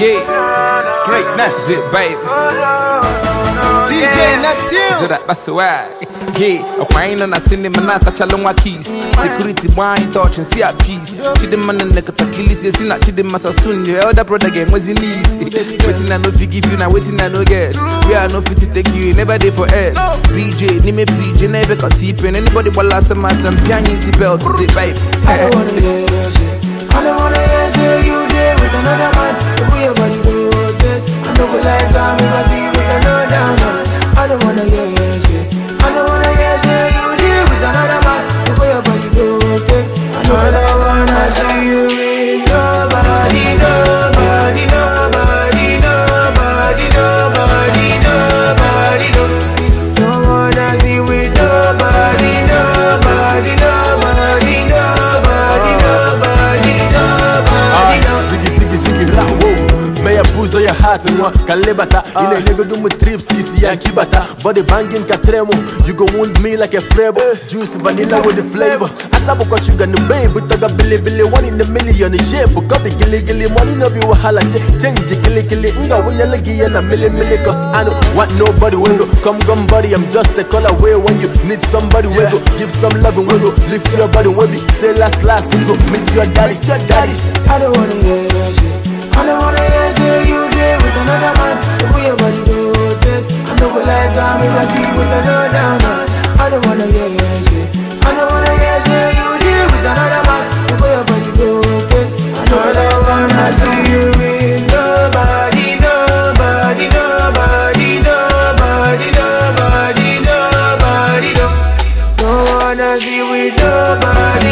Yeah, greatness, it, baby. DJ Yeah, and cinema na tachalonga keys. Security wine touch and see a na nekatakilisi ya sina chidema sasun. Your elder brother game was in easy. Waiting I no forgive you, now waiting I get. We are no fit to take you, never there for BJ, me never got Anybody last belt. Zip, babe. I don't buzo ya hati nwa ka nlebata ị ah. na-enyegodo m trips isi ya nkibata body banging ka you go wound me like a frebo eh. juice vanilla with the flavor sugar shuga na mgbe bụtaga bilibili one in a million shape coffee giligili money no be wahala change giligili nga wụnyele gị ya na milimili cause I know what nobody will go come gum buddy I'm just a call away when you need somebody will go give some love and will go lift your body will be say last last go meet your daddy your daddy I don't wanna hear shit I don't wanna wanna hear you I don't wanna hear say you deal with another man The way your body go okay I don't, wanna see you with nobody Nobody, nobody, nobody, nobody, nobody Don't wanna see with nobody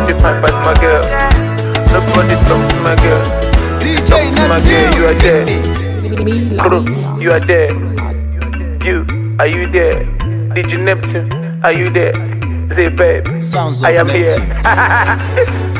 Nobody fight but my girl. Nobody talk to my girl. DJ talk to my girl, you are there. Crew, you are there. You, are you there? DJ Neptune, are you there? Say, babe, Sounds I am here.